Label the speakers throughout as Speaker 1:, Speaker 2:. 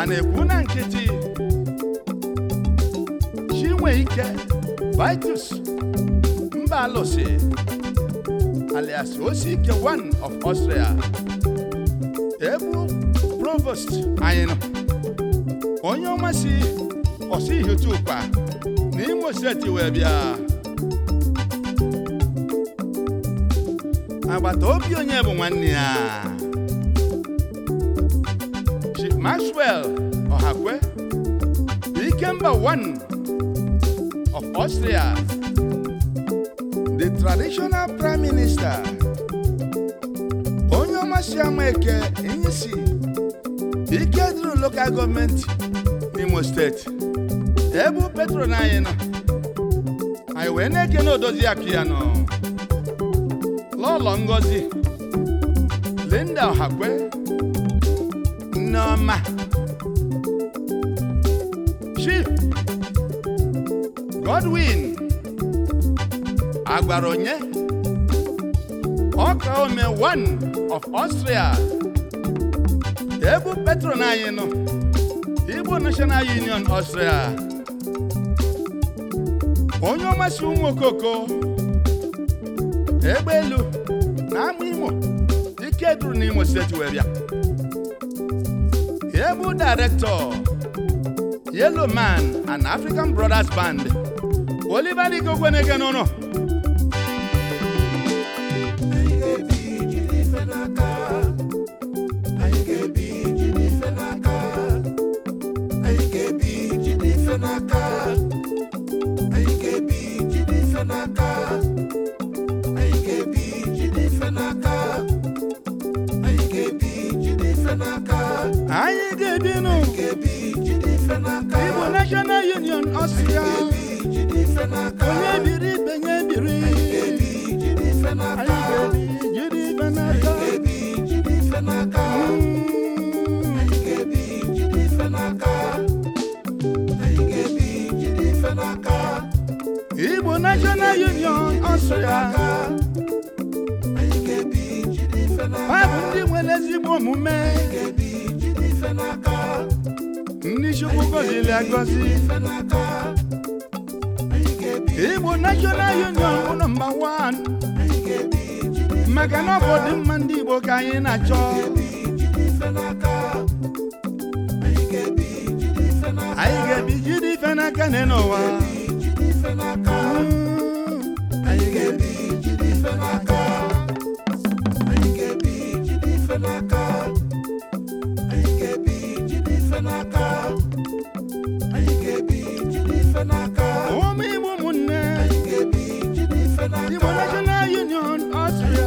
Speaker 1: a na-ekwu na nkịtị nwee ike vitus mba alụsị alias ike one of Austria ebu provost anyị nọ onye ọma si na n'Imo steeti wee bịa agbata obi onye bụ nwanne ya Maxwell ohakwe Ikemba one of Austria, the traditional prime minister, onye ọmasịama eke Inyisi e ike duru local government, n'Imo steeti ebu petro na anyị nọ anyị wee na-eke na odozi ngozi Linda ohakwe n'ọma Chief Godwin Agbaronye Ọkaome one of Austria ebu patron anyị Igbo National Union Austria onye ọmasị ụmụ okoko egbe Imo ike n'Imo steeti Able Director, Yellow Man and African Brothers Band Oliver Igwe Ogweneke n'ụlọ anyị ga-edinu ịbụ National Union Ọsịa onye biri ibe nye biri ezigbo omume ndị chukwu gọziri agọzi igbo national union bụ nọmba 1 maka na ọ ndị igbo ka anyị na-achọ anyị ga-ebi jide ife n'aka n'ụwa n'aka anyị ga-ebi n'aka anyị ga-ebi jide ife n'aka ụmụ ụmụnne anyị Union Austria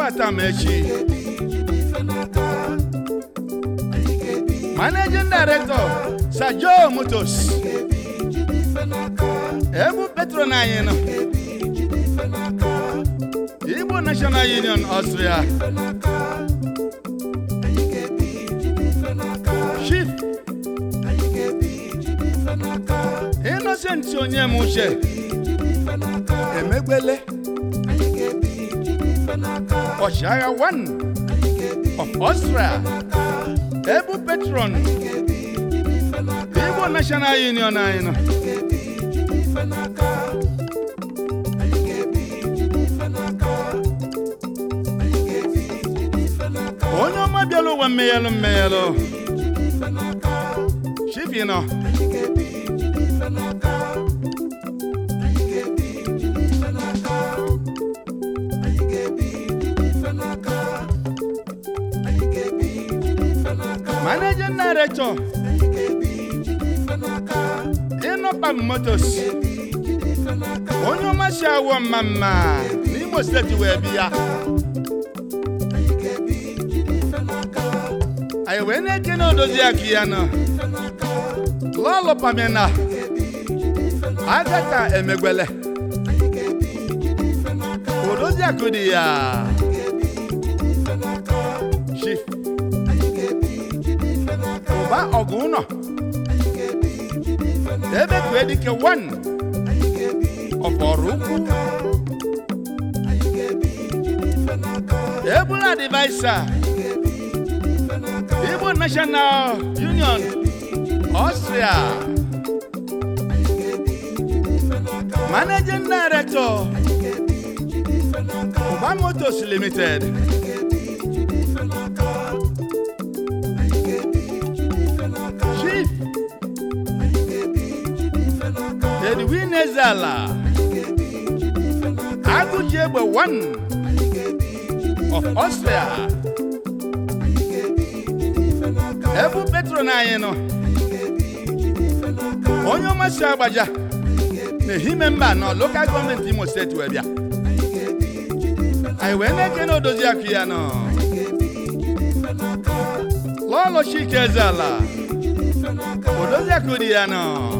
Speaker 1: Patamechi Managing Director Sir Joe Motos Ebu Petron anyị nọ Igbo National Union Austria Chief Innocent Onyem Uche Emegbele Oshaya one of Austria, Ebu Petron, Igbo National Union anyị onye ọma bịala ụwa mmeghelụ mmeghelụ chibi nọ manajan director ịnọkpa motos onye ọma si awọ mma mma n'Imo steeti wee bi ya A wee na-eche na odozi aka ya nọ lọlụpamina agata emegwele odozi akụ dị ya mgba ọgụ ụnọ debekwe 1 wan ọbọrụ ukwu ebula divaisa igbo national union ọstria managing director ụba Motos Limited. Kelvin Ezala Agụji Egbe 1 of Austria ebu petron anyị nọ onye ọmasị agbaja na ehime mba nọ lokal gọọmenti Imo steeti wee bịa anyị wee na-eke na odozi akụ ya nọ lọlọ Chike Ezala odozi akụ dị ya nọ